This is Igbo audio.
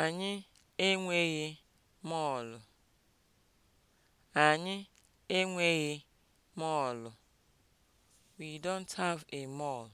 Anyị enweghị mọọlụ. Anyị enweghị mọọlụ. We don't have a mall.